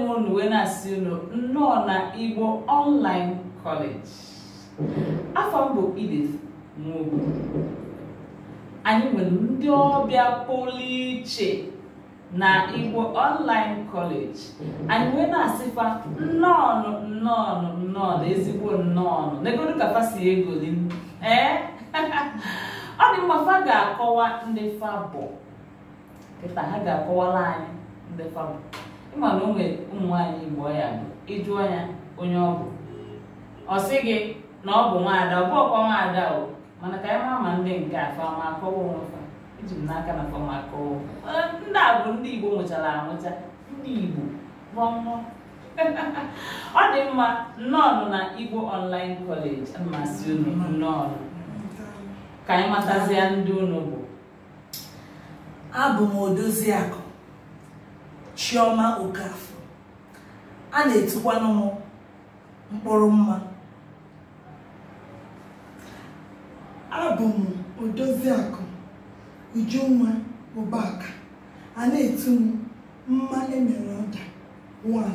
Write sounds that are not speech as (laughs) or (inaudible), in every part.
m unu wee na-asị unu nnọọ na Igbo Online College afọ mbụ bụ Edith Nwogu anyị nwere ndị ọbịa pụrụ iche na Igbo Online College anyị wee na-asịkwa nnọọnụ nnọọnụ nnọọnụ ezigbo nnọọnụ n'egodu ka fa si egoli ee (laughs) ọ dị mma fa ga-akọwa ndị fa bụ kịta ha ga-akọwara anyị ndị fa bụ ịma na onwe ụmụ nwaanyị Igbo ya bụ ịjụọ ya onye ọ bụ ọ sị gị na ọ bụ nwaada ọ bụ ọkwa nwaada o mana ka anyị ma ma ndị nke afọ fama akọwa onwefa eji m n'aka na fama akọwa ndị a bụ ndị Igbo nwụchara anwụcha ndị Igbo rụọ mmụọ (laughs) ọ dị mma nnọọ na Igbo Online College mmasị unu nnọọ ka anyị matazia ndị unu bụ abụ m akụ. Chioma Okafor a na-etikwanụ m mkpụrụ mma abụ m Odoziakụ Ujunwa Obaka a na-etu m mma emere ọda 1.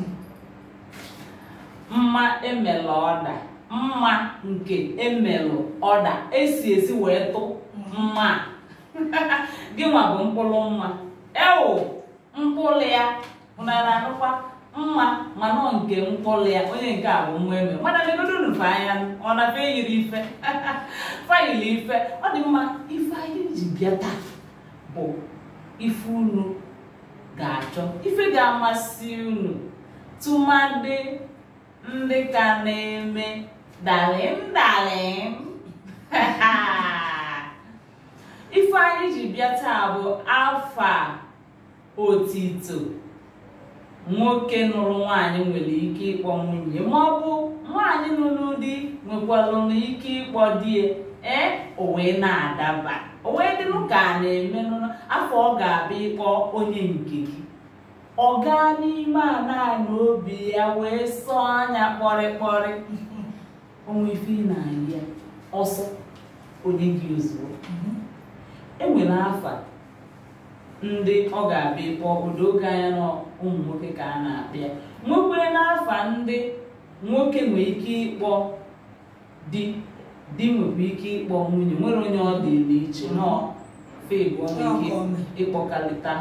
mma emelụ ọda mma nke emelụ ọda esi esi wee tụ mma (laughs) gịnwa bụ mkpụrụ mma ewu. mkpụrụ ya ụna na-anụkwa mma mana nke mkpụrụ ya onye nke a bụ nwa eme mana megodonufe anya ọ na-afe yiri ife (laughs) fayiri ife ọ dị mma ife anyị ji bịa taa bụ ife unu ga-achọ ife ga-amasị unu tụmadị ndị ka na-eme dalịm dalịm (laughs) ife anyị ji bịa taa bụ afọ a otito nwoke nụrụ nwaanyị nwere ike ịkpọ nwunye ma ọ bụ nwaanyị nụrụ di nwekwara ike ịkpọ di ee o na-adaba owe wee dịrụ ka a na-eme afọ ọ ga-abịa ịkpọ onye nke gị ọ gaa n'ime ana na obi ya wee sọ anya kpọrịkpọrị (laughs) onwe ife ị na-ahịa ọsọ onye gị ozugbo mhm. enwere afa ndị ọ ga-abịa ịkpọ odoge anya na ụmụ nwoke ka a na abịa ya nwekwere n'afa ndị nwoke nwere ike ịkpọ di di nwere ike ịkpọ nwunye nwere onye ọ dị n'iche nọ febụ ike ịkpọkalịta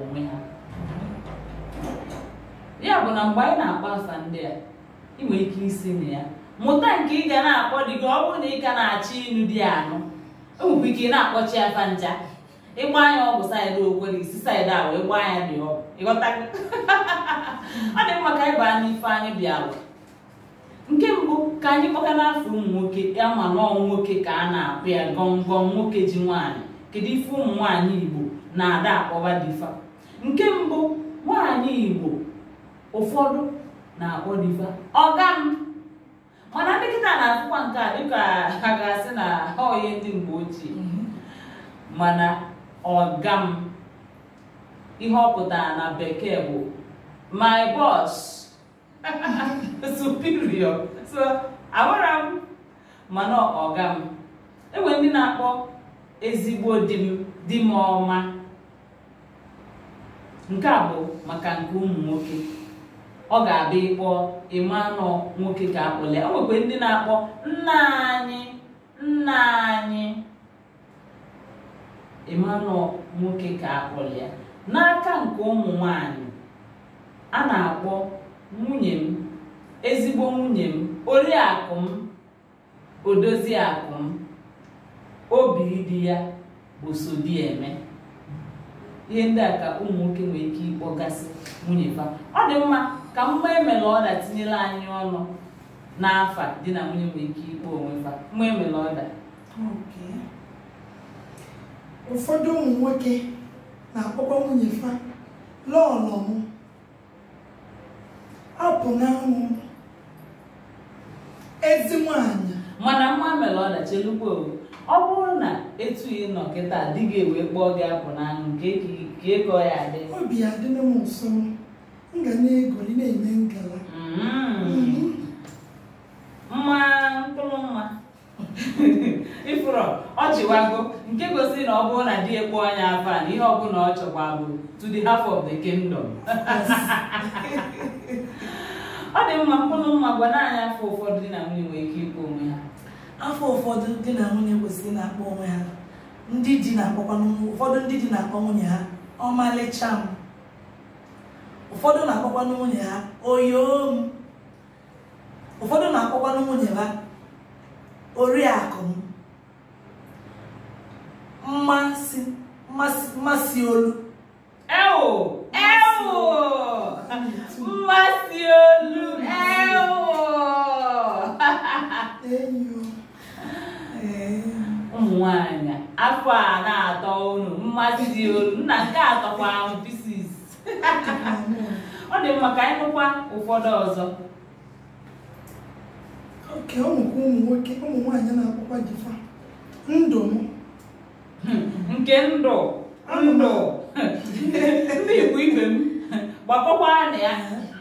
onwe ha ya bụ na mgbe anyị na-akpọ afa ndị a ị nwere ike isi na ya mụta nke ị ga na-akpọ di gị ọ bụrụ na ị ga na-achọ ịnụ di anụ enwekwa ike ị na-akpọchi afa ncha ịgba anya ọgwụ saịdị ogwere isi saịdị awa ịgba anya dị ọgwụ ịghọta (laughs) ọ dị mma ka anyị baa n'ife anyị awa. nke mbụ ka anyị kpọka n'afọ ụmụ nwoke ya ma na nwoke ka a na-akpụ ya gọngọm nwoke ji nwaanyị kedu ife ụmụ nwaanyị igbo na-ada akpọba dịfa nke mbụ nwaanyị igbo ụfọdụ na-akpọ dịfa ọga m mana dịkịta na-akụkwa nke a dịka ha ga-asị na ha onye ndị mgbe ochie mm-hmm. mana ọgam ihe ọ pụtara na bekee bụ my boss (laughs) superior so agwara m mana ọgam, enwere ndị na-akpọ ezigbo di m di m ọma nke a bụ maka nke ụmụ nwoke ọ ga-abịa ịkpọ ịmanụ nwoke ka akpọle o nwekwa ndị na-akpọ nna anyị nna anyị Emmanuel nwoke ka akpọrọ ya n'aka nke ụmụ nwanyị a na-akpọ nwunye m ezigbo nwunye m oriakụ m odoziakụ m obi dị ya bụ eme ihe ndị a ka ụmụ nwoke nwere ike ịkpọgasị nwunye fa ọ dị mma ka mgbe emere ọda tinyere anyị ọnụ n'afa di na nwunye nwere ike ịkpọ onwe fa mgbe emere ọda ụfọdụ ụmụ nwoke na-akpọkwa nwunye fa lọọlọ m apụ na ụmụ ezi nwanyị mana nwa mere ọdachi elugbo ọ bụrụ na etughị nọ kịta gị ewe kpọọ gị apụ n'anwụ ka ịkọ ya adị obi adịla m nso m ga na-egoli na-eme ngala mm-hmm. mma mkpụrụ mma (laughs) ifụrọ ọchịwago nke gosiri na ọ bụrụ na di ekpo anya afọ a na ihe ọbụla ọ chọkwa bụ to the half of the kingdom ọ dị mma mkpụrụ mma gwa anyị afọ ụfọdụ dị na nwunye nwere ike ịkpọ onwe ha afọ ụfọdụ dị na nwunye kwesịrị na-akpọ onwe ha ndị di na-akpọkwa ụfọdụ ndị di na-akpọ nwunye ha ọmalịcha m ụfọdụ na-akpọkwanụ nwunye ha m; ụfọdụ na-akpọkwanụ nwunye ha oriakụ m Mansi, mas, Maciolo. Eu! Eu! Maciolo! Eu! Eu! Nwaanyị, afọ a na-atọ unu mmasị dị olu nna nke atọkwa ahụ pisis ọ dị mma ka que é ụfọdụ é é é. ọzọ oke ụmụ nwoke ụmụ nwaanyị na-akpọkwa jifa ndụ domo nke ndụ ndụ ndị igbo ibe m gbakọkwaa na ya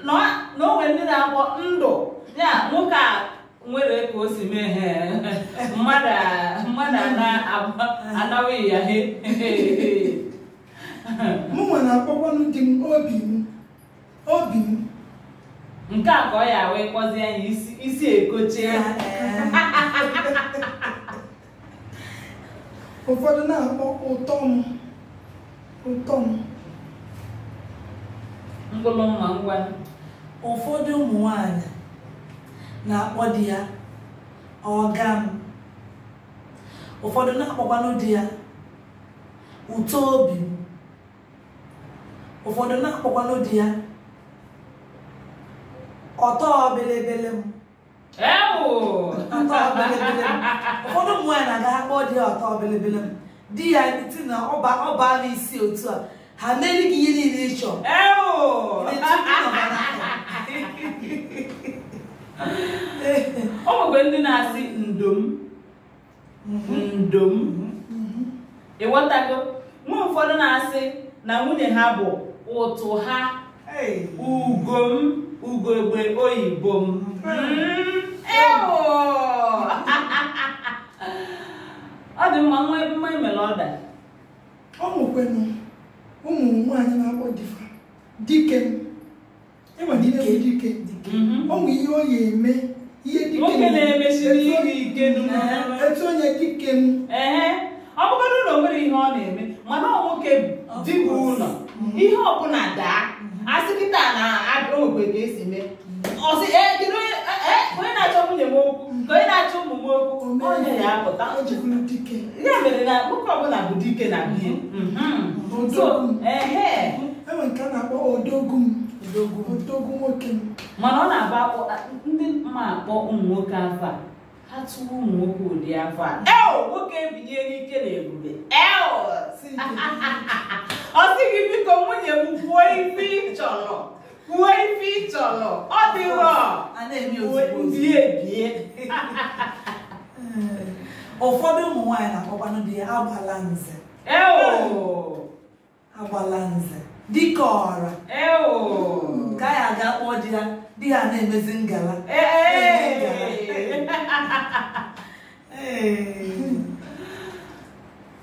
(laughs) na onwe ndị na-akpọ ndụ ya nwoke a nwere ka o si mee he mmadụ anaghị ya he mụnwa na-akpọkwanụ di m obi m obi m nke a ka ọ ya wee kpọzie ya isi ekochie (laughs) (laughs) ụfọdụ na-akpọ ụtọ m ụtọ m mkpụrụ mma ngwa ụfọdụ ụmụ nwanyị na-akpọ di ya ọga m ụfọdụ na-akpọkwanụ di ya ụtọ obi m ụfọdụ na-akpọkwanụ di ya ọtọ belebele m ụfọdụ ụmụ na-aga kpọọ dị ya ọtọ bilibili di ya ti na ọba n'isi otu a ha mere gị ihe niile ịchọ. chọrọ o ndị na-asị ndom mhm. ndom mhm. ịghọtago nwa ụfọdụ na-asị na nwunye ha bụ ụtụ ha ugom ugogbe oyibo m mhm. ewo (laughs) ọ dị mma nwa mma emere ọda ọ nwekwenụ ụmụ nwaanyị na-akpọ difa dike ịnwere e ihe dike mhm. ọ nwe ihe ọ ya eme ihe dike na-emesiri ihe ike etu onye dike m ọ bụgodị ụlọ nwere ihe ọ na-eme mana ọ nwoke dịbụ ụlọ mhm. ihe ọbụla daa asị kịta na agụrụ ogbe ga-esi mee ọsị ee na-achọ ụmụ m okwu onye na-apụta ya mere na nwoke ọbụla bụ dike na ihe mm-hmm. mm-hmm. enwe nke a na-akpọ odogwu m nwoke m mana ọ na akpọ ndị mma akpọ ụmụ nwoke afọ a ha tụwa ụmụ nwoke ụdị afọ a eo nwoke ebinye n'ike na ebube eo (laughs) ọ sịghị biko nwunye m kwuo ife ị chọrọ kwuo ife ị chọrọ ọ dịrọ ndị ebie ụfọdụ ụmụ nwaanyị na-akpọkwanụ dị ya agbala nze agbala nze dịka ọra ka ya aga kpọọ di ya di ya na-emezi ngala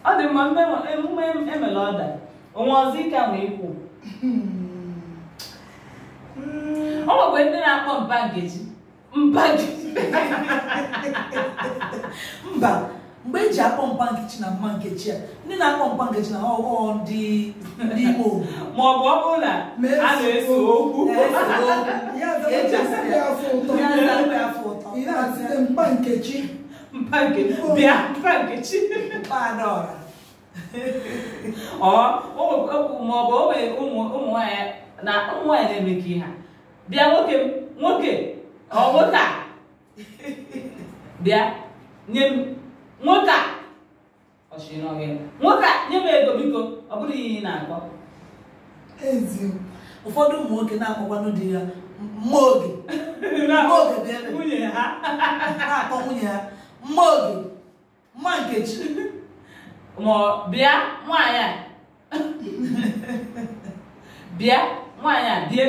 ọ dị mma emume emela ọda onwe ọzọ ike a ma ikwu ọ nwekwe ndị na-akpọ mba nkeji mba mba mgbe eji akpọ mba nkechi na mma nkechi a ndị na-akpọ mba nkechi na ọghọọ ndị Igbo ma ọ bụ ọ na a na-ese okwu mba nkechi mba nkechi ọ maọbụ ọ bụ ụmụ nwaanyị na ụmụ nwanyị na-eme ihe bịa nwoke m nwoke ọ nwoke bịa nye m nwoke a ọchịnọghị nwoke nye m ego biko ọ bụrụ ihe ị na-akọ ezi ụfọdụ ụmụ nwoke na-akpọkwanụ di ya mma oge (laughs) mma oge nwunye ha (laughs) na-akpọ nwunye ha mma oge mma nkechi ma (laughs) bịa nwaanyị a bịa nwaanyị a bịa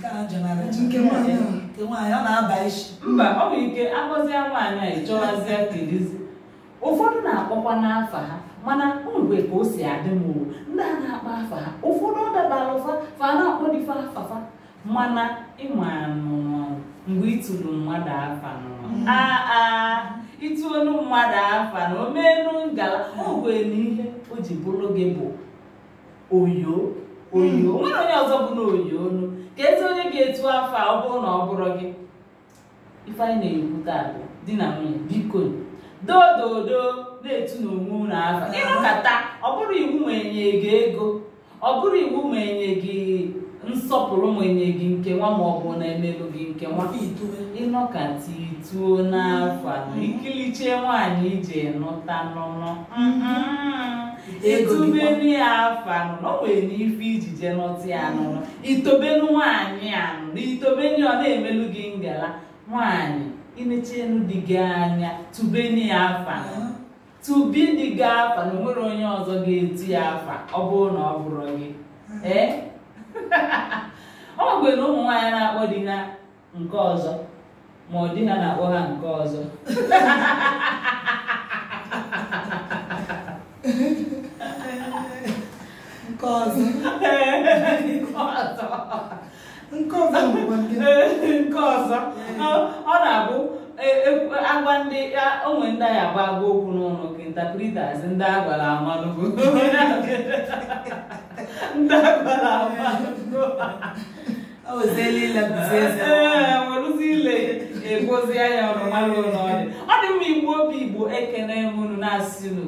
nke a nke nwaanyị ọ na-aba isi mba ọ bụ ike agọzie nwaanyị a chọwazie kelizi ụfọdụ na-akpọkwa n'afa ha mana mgbe ka o si adị m owu ndị a na-akpa afa ha ụfọdụ ọ dabara ụfa fa na-akpọ dịfa afafa mana ịma mgbe ịtụrụ mmadụ afa mm. aa ịtụolu mmadụ afa na omenu ngala ogwe na ihe o ji bụrụ gị bụ oyo oyo nwere onye ọzọ bụ na onu ka ezi onye ga-etu afọ ọ bụrụ na ọ bụrụ gị ifeanyị na-ekwu taa di na nwunye biko dododo na-etu na onwe unu afọ ịnụkata ọ bụrụ iwu ma enye gị ego ọ bụrụ iwu ma enye gị nsọpụrụ ma enye gị nke nwa ma ọ bụ na emelụ gị nke nwa ịnọkata ituo n'afọ mm-hmm. ikilichie nwaanyị iji nụta n'ụlọ etubelu ya afọ anụnụ o nwere n'ife iji je nọtụ anụnụ itobelu nwaanyị anụnụ itobelu ọ na-emelu gị ngala nwaanyị imechienu dị gị anya tubeni ya tubi dị gị afa na onwere onye ọzọ ga-etu ya afa ọ bụrụ na ọ bụrụ gị eh? (laughs) ọ gwere ụmụ nwaanyị na-akpọ di ha nke ọzọ ma ọ dị ha na-akpọ ha nke ọzọ (laughs) Nkozu. nke ọzọ nke ọzọ ọ na-abụ agwa ndị onwe ndị anyị agba agwa okwu n'ụlọ ka intapritas ndị agwara amalụgo ndị agwara amalụgo werụzi ile egozi anya ụlọ ụlọọrụ ọ dị mma igbu obi igbo ekene m unu na-asị unu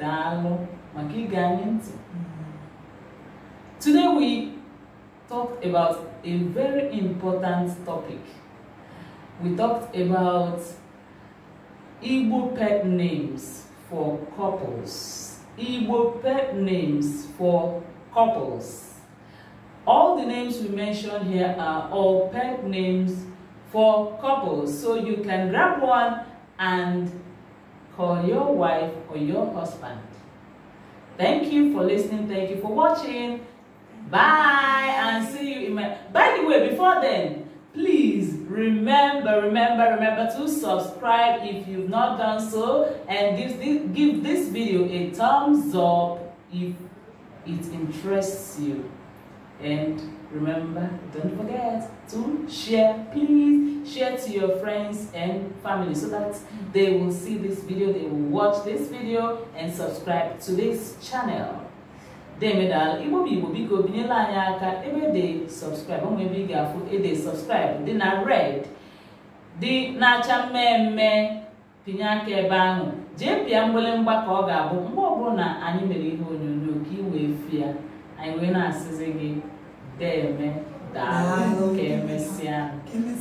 daalụ maka ige anyị ntị Today we talked about a very important topic. We talked about Igbo pet names for couples. Igbo pet names for couples. All the names we mentioned here are all pet names for couples. So you can grab one and call your wife or your husband. Thank you for listening. Thank you for watching. Bye and see you in my... By the way, before then, please remember, remember, remember to subscribe if you've not done so and give this, give this video a thumbs up if it interests you. And remember, don't forget to share, please. Share to your friends and family so that they will see this video, they will watch this video and subscribe to this channel. demedala igbo bụ igbo biko binyela anyị aka ebe de sọbskraịbụ ụmụ ebe ị ga-afụ ede sọbskraịbụ dị na red dị na-acha mmemme pinye aka ebe ahụ jee pịa mgbalemgba ka ọ ga-abụ mgbe ọbụla na anyị mere ihe onyonyo ka ị wee fịa anyị nwee na-asịzi gị deme daalụ ka emesịa